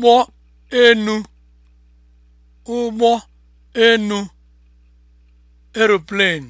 ụgbọ enu ụgbọ enu (aeroplane)